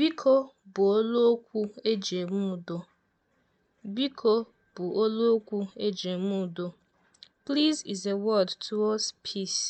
Biko bụ oluokwu eji eme udo. Biko bụ oluokwu eji eme udo. Please is a word towards peace.